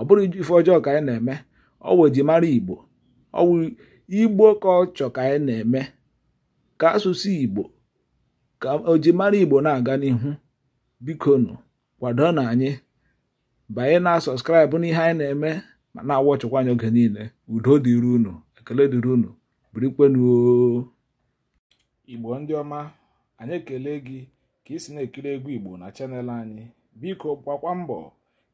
ọ bụrụ ife ọjọọ ka anyị na-eme ọwụ ejimara igbo ọwụ igbo ka ọ chọ ka anyị na-eme ka asụsụ igbo ka ojimara igbo na-aga n'ihu bikonu kwado na anyị banye na sọskraịbụ ihe anyị na-eme ma na-awọ chụkwa anyị oge niile udo dịrị unu ekele dịrị unu birikwenuo igbo ndị ọma anyị ekele gị ka ị si na-ekiri egwu igbo na chanel anyị biko gbakwa mbọ